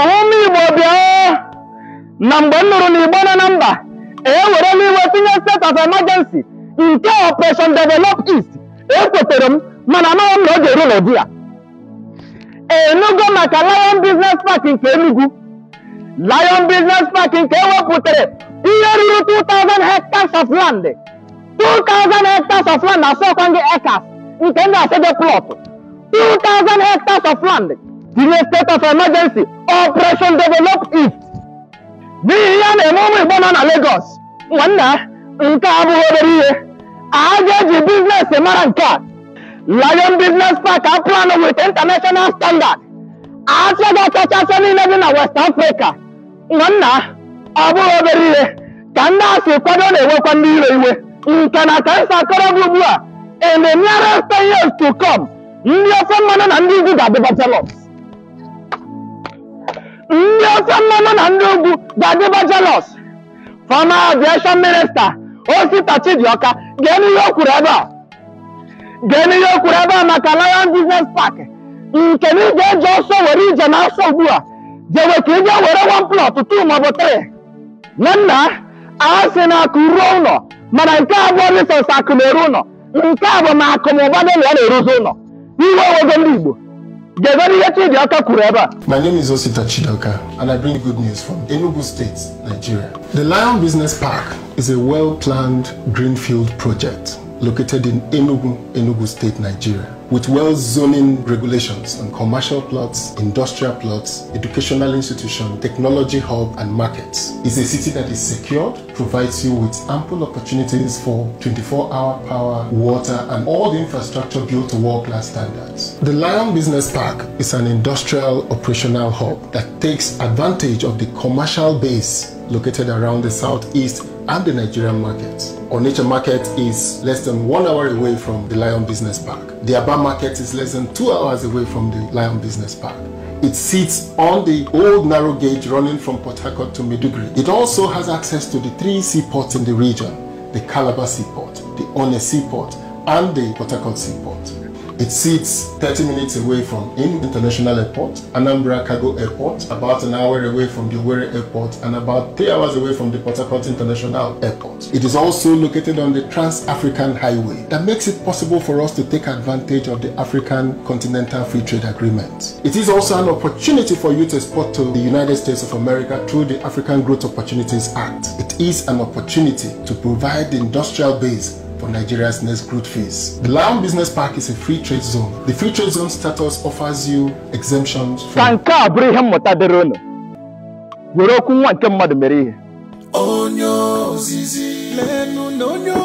ụmụ Igbo bịa na mgbe m nụrụ na Igbo nọ na mba ewerela iwe tinye state of emergency nke operation develop east ekwetere m mana amaghị m na oge eru n'ụdị ya enugo maka Lion Business Park nke Enugu Lion Business Park nke ewepụtara ihe ruru 2000 hectares of land 2000 hectares of land asọkwa gị acres nke ndị asede plot 2000 hectares of land delay state of emergency operation develop it n'ihi ihe a na-eme ụmụ igbo nọ na Lagos nwanna nke a abụghị obere ihe aja eji biznes mara nke a Lion Business Park a plan with international standard aja ga-akachasị niile dị na West Africa nwanna ọ bụghị obere ihe ka ndị a si kwado na-ewekwa ndị ire iwe nke na ka nsa akọrọbụ ugbu a in the nearest years to come ndị ofe mmanụ na ndị izu ga-adịba jealous ọsọ mmanụ na ndị ugwu ga jelọs jelos fọma minista Osita Chidioka gee ihe o kwuru ebe a geenụ ihe o ebe a maka Lion Business Park nke na ịga ga-eji ọsọ were ije na asọ ugbu a jewe ka ị ga were one plọt two maọbụ tri. na nna a sị na akụ ruo ụlọ mana nke a bụ risọs akụ na-eru ụlọ nke a bụ na akụ na ụba dị na ya na-eruzi ụlọ iwe owego ndị Igbo My name is Osita Chidoka, and I bring good news from Enugu State, Nigeria. The Lion Business Park is a well-planned greenfield project located in Enugu, Enugu State, Nigeria. with well zoning regulations on commercial plots, industrial plots, educational institutions, technology hub, and markets. It's a city that is secured, provides you with ample opportunities for 24-hour power, water, and all the infrastructure built to world-class standards. The Lion Business Park is an industrial operational hub that takes advantage of the commercial base located around the southeast and the Nigerian market. Onitsha market is less than one hour away from the Lion Business Park. The Aba market is less than two hours away from the Lion Business Park. It sits on the old narrow gauge running from Port Harcourt to Maiduguri. It also has access to the three seaports in the region, the Calabar Seaport, the One Seaport, and the Port Harcourt Seaport. It sits 30 minutes away from IN International Airport, Anambra Cargo Airport, about an hour away from the Owerri Airport, and about three hours away from the Port Harcourt International Airport. It is also located on the Trans-African Highway that makes it possible for us to take advantage of the African Continental Free Trade Agreement. It is also an opportunity for you to export to the United States of America through the African Growth Opportunities Act. It is an opportunity to provide the industrial base on Nigeria's next growth phase. The Lion Business Park is a free trade zone. The free trade zone status offers you exemptions from... Ka nke a bụrụ ihe mmụta dịrị Lenu na onye